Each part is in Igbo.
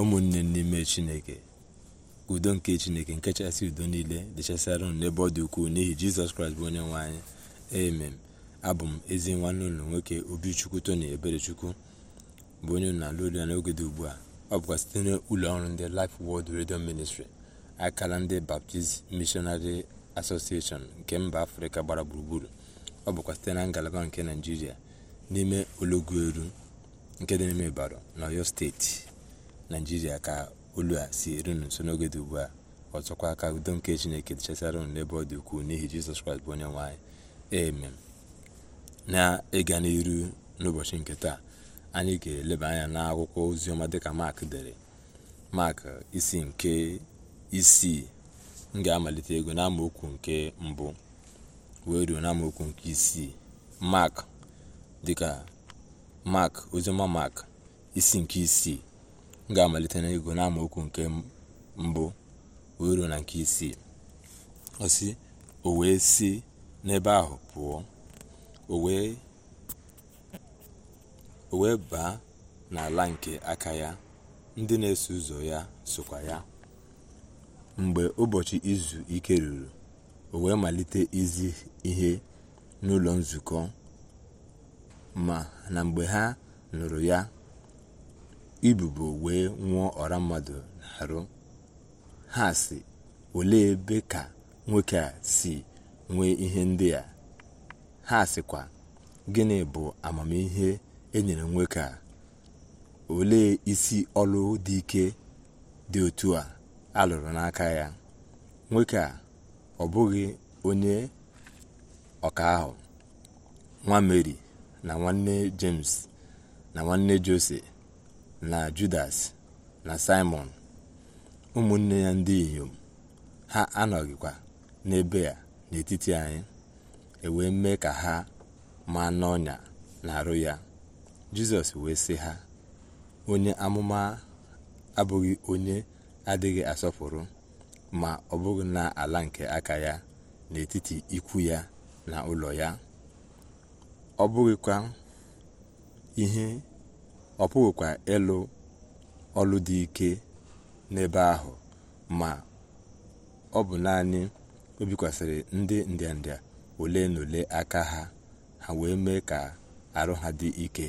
ụmụnne n'ime chineke udo nke chineke nke chasị udo niile dịchasịara unu n'ebe ọ dị ukwuu n'ihi jizọs kraịst bụ onye nwe amen abụ m ezi nwanne ụlọ nwoke obichukwu tony eberechukwu bụ onye na-alụ olu ya n'oge dị ugbu a ọ bụkwa site n'ụlọ ọrụ ndị life world redio ministri akara ndị baptist missionary association nke mba afrịka gbara gburugburu ọ bụkwa site na ngalaba nke naijiria n'ime olọgwu eru nke dị n'ime ibaro na oyo steeti naijiria ka olu a si erunu nso n'oge dị ugbu a ọzọkwa aka udo nke chineke dịchasịara unu n'ebe ọ dị ukwuu n'ihi jizọs kraịst bụ onye nwanyị amen na-ịga n'iru n'ụbọchị nke taa anyị ga-eleba anya n'akwụkwọ oziọma dịka mak dere mak isi nke isii m ga-amalite ego n'amaokwu nke mbụ wee ruo na nke isii mak dịka mak oziọma mak isi nke isii m ga-amalite n'ego n'amaokwu nke mbụ uru na nke isii osi o wee si n'ebe ahụ pụọ o wee baa n'ala nke aka ya ndị na-eso ụzọ ya sokwa ya mgbe ụbọchị izu ike ruru o wee malite izi ihe n'ụlọ nzukọ ma na mgbe ha nụrụ ya ibubo wee nwụọ ọra mmadụ n'arụ ha si olee ebe ka nwoke a si nwee ihe ndị a ha sịkwa gịnị bụ amamihe enyere nwoke a olee isi ọlụ dị ike dị otu a alụrụ n'aka ya nwoke a ọ bụghị onye ọka ahụ nwa meri na nwanne james na nwanne jose na judas na simon ụmụnne ya ndị inyom ha anọghịkwa n'ebe a n'etiti anyị ewee mee ka ha maa n'ọnya na-arụ ya jizọs wee sị ha onye amụma abụghị onye adịghị asọpụrụ ma ọ bụghị ala nke aka ya n'etiti ikwu ya na ụlọ ya ọ bụghịkwa ihe ọ pụghịkwa ịlụ ọlụ dị ike n'ebe ahụ ma ọ bụ naanị o bikwasịrị ndị ndịnda ole na ole aka ha ha wee mee ka arụ ha dị ike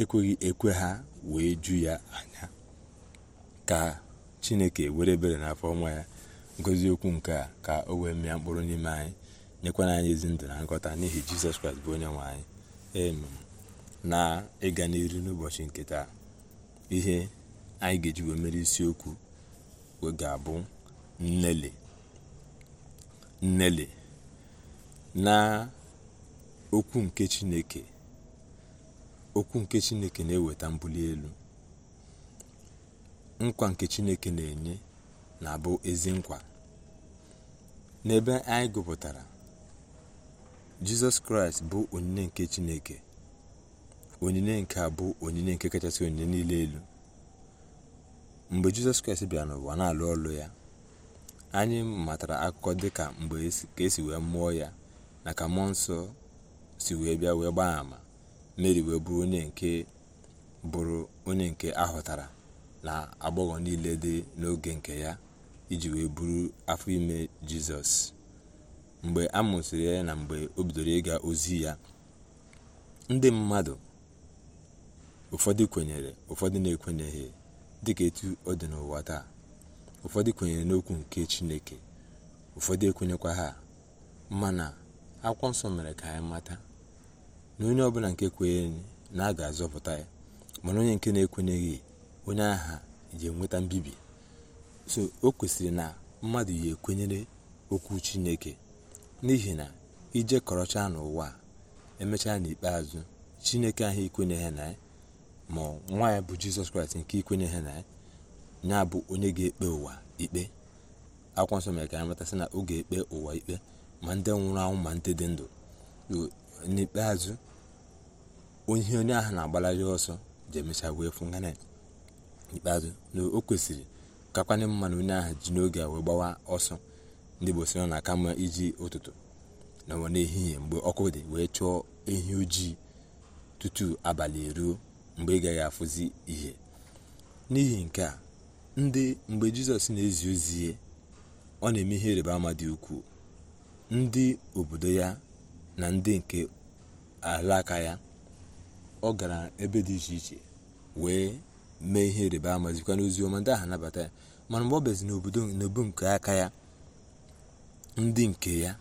ekweghị ekwe ha wee ju ya anya ka chineke were ebere n'afọ ọnwa ya ngozi okwu nke a ka o wee mịa mkpụrụ n'ime anyị nyekwana anyị ezi ndụ na nghọta n'ihi jizọs kraịst bụ onye nwe anyị amen na ịga n'iru n'ụbọchị nke taa ihe anyị ga-eji wee mere isiokwu ga-abụ nnele nnele na okwu nke chineke okwu nke chineke na-eweta mbuli elu nkwa nke chineke na-enye na-abụ ezi nkwa n'ebe anyị gụpụtara jizọs kraịst bụ onyinye nke chineke onyinye nke a bụ onyinye nke kachasị onyinye niile elu mgbe jizọs kraịst bịara n'ụwa na-alụ ọlụ ya anyị matara akụkọ dị ka mgbe e ka esi wee mụọ ya na ka mmụọ nsọ si wee bịa wee gbaa ama meri wee bụrụ onye nke bụrụ onye nke ahụtara na agbọghọ niile dị n'oge nke ya iji wee bụrụ afọ ime jizọs mgbe a mụsịrị ya na mgbe o bidoro ịga ozi ya ndị mmadụ ụfọdụ kwenyere ụfọdụ na-ekwenyeghị dịka etu ọ dị n'ụwa taa ụfọdụ kwenyere n'okwu nke chineke ụfọdụ ekwenyekwa ha mana akwụkwọ nsọ mere ka anyị mata na onye ọbụla nke kwenyere na a ga-azọpụta ya mana onye nke na-ekwenyeghị onye agha ji enweta mbibi so o kwesịrị na mmadụ ya ekwenyere okwu chineke n'ihi na ije kọrọcha n'ụwa emechaa n'ikpeazụ chineke ahụ ikwenyeghị na ya ma nwa ya bụ jizọs kraịst nke ikwenye ha na ya bụ onye ga-ekpe ụwa ikpe akwụkwọ nsọ mere ka anyị matasị na oge ekpe ụwa ikpe ma ndị nwụrụ anwụ ma ndị dị ndụ n'ikpeazụ onye onye ahụ na-agbalari ọsọ ji emecha wee fụ ikpeazụ na o kwesịrị kakwanye mma na onye ahụ ji n'oge a wee gbawa ọsọ ndị igbo na aka mma iji ụtụtụ na n'ehihie mgbe ọkụ dị wee chụọ ehi ojii tutu abalị eruo mgbe ị gaghị afụzi ihe n'ihi nke a ndị mgbe jizọs na-ezi ozi ọ na-eme ihe ịrịba ama dị ukwuu ndị obodo ya na ndị nke alaka ya ọ gara ebe dị iche iche wee mee ihe ịrịba ama zikwa n'ozi ọma ndị ahụ nabata ya mana mgbe ọ bezi n'obodo n'obu nke aka ya ndị nke ya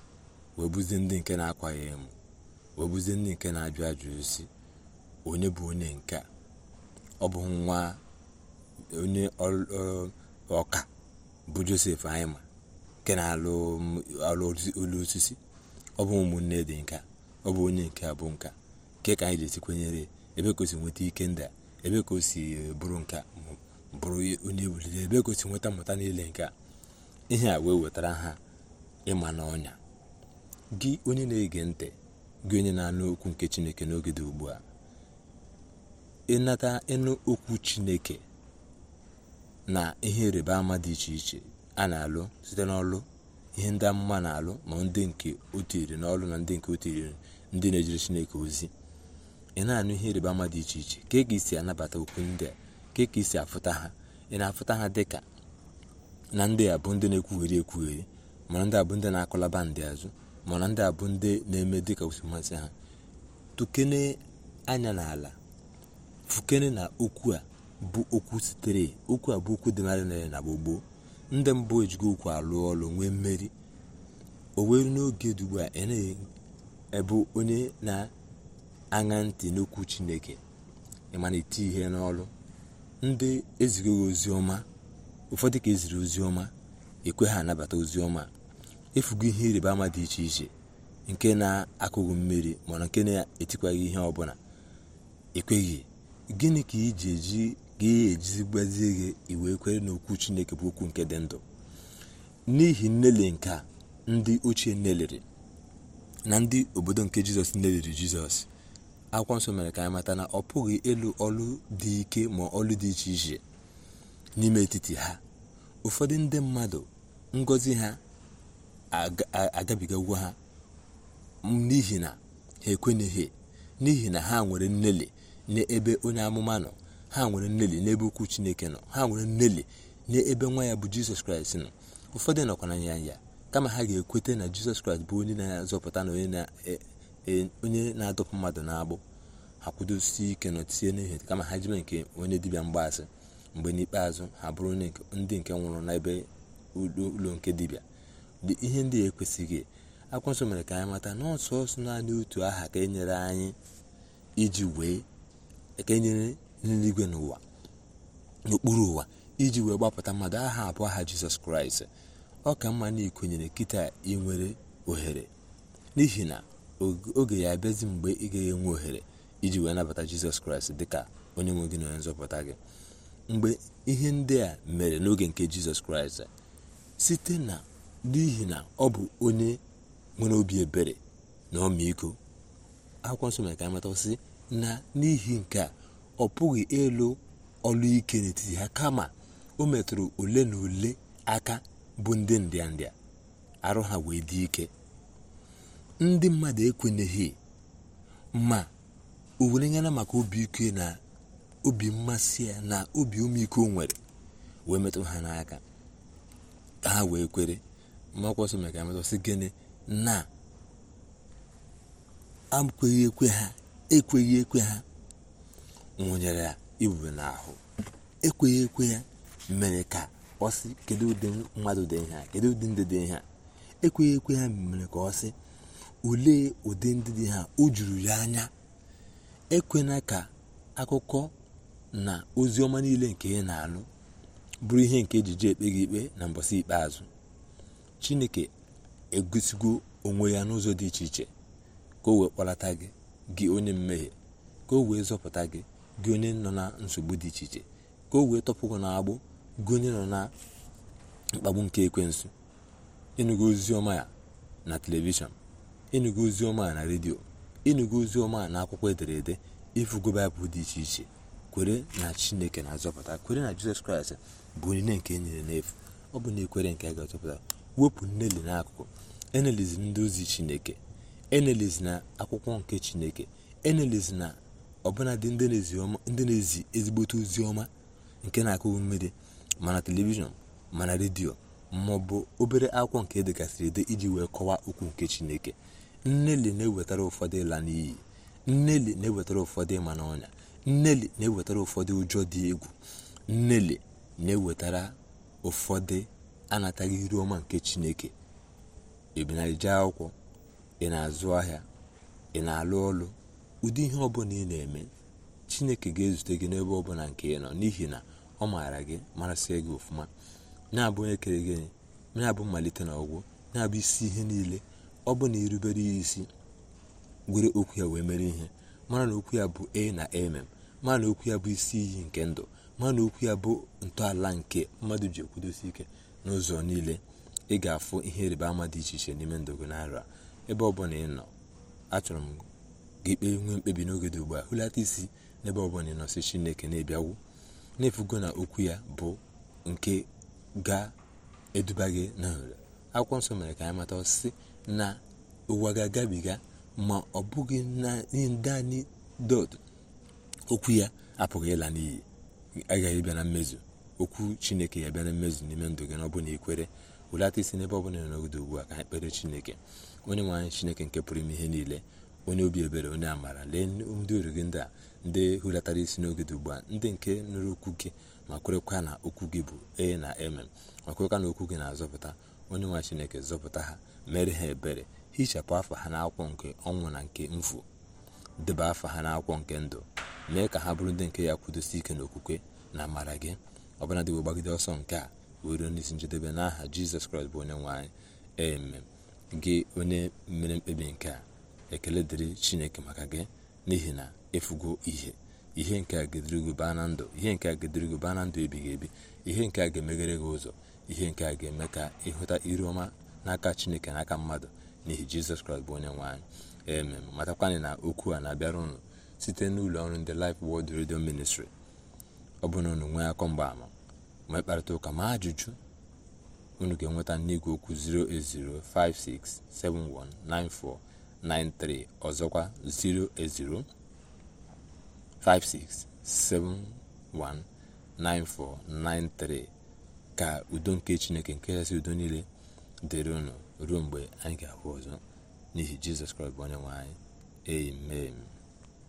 wee bụzie ndị nke na-akwa ya emu wee bụzie ndị nke na-ajụ ajụ osi onye bụ onye nke ọ bụ nwa onye ọka bụ josef anyị ma nke na-alụ olu osisi ọ bụ ụmụnne dị nka ọ bụ onye nke bụ nka nke ka anyị ji kwenyere ebe ka o si nweta ike ndị ebe ka o si bụrụ nka bụrụ onye ebulite ebe ka o si nweta mmụta niile a ihe a wee wetara ha ịma n'ọnya gị onye na-ege ntị gị onye na-anụ okwu nke chineke n'oge dị ugbu a ịnata ịnụ okwu chineke na ihe ịrịba ama dị iche iche a na-alụ site n'ọlụ ihe ndị amụma na-alụ ma ndị nke otu iri n'ọlụ na ndị nke otu iri ndị na-ejere chineke ozi ị na-anụ ihe ịrịba ama dị iche iche ka ị si anabata okwu ndị a ka ị si afụta ha ị na-afụta ha dị ka na ndị a bụ ndị na-ekwugheri ekwugheri mana ndị a bụ ndị na-akọlaba ndị azụ mana ndị a bụ ndị na-eme dịka osimmasị ha tukene anya n'ala fukene na okwu a bụ okwu sitere okwu a bụ okwu dị narị narị na gbogbo ndị mbụ ejigo okwu alụ ọlụ nwee mmeri o were n'oge dị a e ị ebu onye na-aṅa ntị n'okwu chineke ịmana eti ihe n'ọlụ ndị ezigo ozi ọma ụfọdụ ka eziri ozi ọma ekwe ha anabata ozi ọma efugo ihe ịrịba ama dị iche iche nke na-akụghị mmiri mana nke na-etikwaghị ihe ọbụla ekweghị gịnị ka iji eji ga ejizi gbazie gị iwe kwere n'okwu chineke bụ okwu nke dị ndụ n'ihi nnele nke ndị ochie neliri na ndị obodo nke jizọs neliri jizọs akwụkwọ nsọ mere ka anyị mata na ọ pụghị ịlụ ọlụ dị ike ma ọlụ dị iche iche n'ime etiti ha ụfọdụ ndị mmadụ ngọzi ha agabigagwo ha n'ihi na ha ekwenyeghị n'ihi na ha nwere nnele n'ebe onye amụma nọ ha nwere nneli n'ebe ukwu chineke nọ ha nwere nneli n'ebe nwa ya bụ jizọs kraịst nọ ụfọdụ nọkwa na ya kama ha ga-ekweta na jizọs kraịst bụ onye na-azọpụta na onye e, na-adọpụ mmadụ na-agbụ ha kwudosi ike nọtie n'ihe kama ha jibe nke onye dibịa mgbaasị mgbe n'ikpeazụ ha bụrụ ndị nke nwụrụ n'ebe ụlọ nke dibịa ihe ndị a ekwesịghị akwụkwọ nsọ mere ka anyị mata na ọsọsọ naanị otu aha ka e nyere anyị iji wee ekenyere nyere n'eluigwe n'ụwa n'okpuru ụwa iji wee gbapụta mmadụ aha abụọ aha jizọs kraịst ọ ka mma na ikwenyere kịta ị ohere n'ihi na oge ya abịazi mgbe ị gaghị enwe ohere iji wee nabata jizọs kraịst dịka onye nwe gị na onye nzọpụta gị mgbe ihe ndị a mere n'oge nke jizọs kraịst site na n'ihi na ọ bụ onye nwere obi ebere na ọmịiko akwụkwọ nsọ mere ka anyị matasị na n'ihi nke a ọ pụghị ịlụ ọlụ ike n'etiti ha kama o metụrụ ole na ole aka bụ ndị ndịa ndịa arụ ha wee dị ike ndị mmadụ ekwenyeghị ma o were maka obi ike na obi mmasị ya na obi ụmụiko nwere wee metụ ha n'aka ka ha wee kwere makwọsọ maka gịnị na akweghị ekwe ha ekweghị ekwe ha nwụnyere ya ibube n'ahụ ekweghị ekwe ya mere ka ọ sị kedu ụdị mmadụ dị ihe a ụdị ndị dị ihe a ekweghị ekwe ya mere ka ọ sị olee ụdị ndị dị ha o juru ya anya ekwena ka akụkọ na ozi ọma niile nke ị na alụ bụrụ ihe nke ejije ekpe gị ikpe na mbọsị ikpeazụ chineke egosigo onwe ya n'ụzọ dị iche iche ka o wee kpọlata gị gị onye mmehie ka o wee zọpụta gị gị onye nọ na nsogbu dị iche iche ka o wee gị na agbụ gị onye nọ na mkpagbu nke ekwensu ịnụgo ozi ọma ya na telivishọn ịnụgo ozi ọma ya na redio ịnụgo ozi ọma ya na akwụkwọ ederede ịfụgo baịbụl dị iche iche kwere na chineke na-azọpụta kwere na jizọs kraịst bụ onyinye nke e nyere n'efu ọ bụ na ekwere nke a ga-azọpụta wepụ nneli n'akụkụ enelizi ndị ozi chineke enelis na akwụkwọ nke chineke enelis na ọbụnadị ndị na-ezi ezigbote oziọma nke na-akụ mmiri mana telivishọn mana redio ma ọ bụ obere akwụkwọ nke edegasịrị ede iji wee kọwaa okwu nke chineke nneli na-ewetara ụfọdụ ịla n'iyi nneli na-ewetara ụfọdụ ịma n'ọnya nneli na-ewetara ụfọdụ ụjọ dị egwu nneli na-ewetara ụfọdụ anataghị iru ọma nke chineke ebinarije akwụkwọ ị na-azụ ahịa ị na-alụ ọlụ ụdị ihe ọbụla ị na-eme chineke ga-ezute gị n'ebe ọbụla nke ị nọ n'ihi na ọ maara gị marasị gị ọfụma na-abụ onye kere gị na-abụ mmalite na ọgwụ na-abụ isi ihe niile ọ bụ na irubere ya isi were okwu ya wee mere ihe mara na okwu ya bụ a na mm mara na okwu ya bụ isi iyi nke ndụ mara na okwu ya bụ ntọala nke mmadụ ji ekwudosi ike n'ụzọ niile ị ga-afụ ihe ịrịba ama dị iche iche n'ime ndụ gị n'arọ a ebe ọbụla ị nọ achọrọ m gị kpee nwee mkpebi n'oge dị ugbu a hụlata isi n'ebe ọbụla ị nọ si chineke na-ebiawu na-efugo na okwu ya bụ nke ga-eduba gị n'nrị akwụkwọ nsọ mere ka anyị mata ọsịsị na ụwa ga-agabiga ma ọ bụghị na ndị dọt okwu ya apụghị ịla n'iyi agaghị bịa na mmezu okwu chineke ya bịa na mmezu n'ime ndụ gị n'ọbụ na ikwere welata isi n'ebe ọbụla nọgide ugbu a ka anyị kpere chineke onye nwe chineke nke pụrụ ime ihe niile onye obi ebere onye amara lee ndị uru gị ndị a ndị hulatara isi n'oge dị ugbu a ndị nke nụrụ okwu gị ma kwerekwa na okwu gị bụ e na mm ma kwerekwa na okwu gị na-azọpụta onye nwa chineke zọpụta ha mere ha ebere hichapụ afọ ha n'akwụkwọ nke ọnwụ na nke mfu deba afọ ha n'akwụkwọ nke ndụ mee ka ha bụrụ ndị nke ya kwudosi ike okwukwe na amara gị ọbụla dịwo gbagide ọsọ nke a wee ruo n'isi njedebe n'aha jizọs kraịst bụ onye nwe anyị gị onye mere mkpebi nke a ekele dịrị chineke maka gị n'ihi na ịfụgo ihe ihe nke a ga gị baa na ndụ ihe nke a ga gị baa na ndụ ebighị ebi ihe nke a ga-emeghere gị ụzọ ihe nke a ga-eme ka ịhụta iru ọma n'aka chineke n'aka mmadụ n'ihi jizọs kraịst bụ onye nwe anyị eme matakwanị na okwu a na-abịara ụnụ site n'ụlọ ọrụ ndị Life Word Radio Ministry ọ bụrụ na nwee akọ mgbaama ma mkparịta ụka ma ajụjụ unu ga-enweta n'igwe okwu 08056719493 ọzọkwa 0056719493 ka udo nke chineke nke kachasị udo niile dịrị unu ruo mgbe anyị ga-ahụ ọzọ n'ihi jizọs kraịst bụ onye nwe anyị amen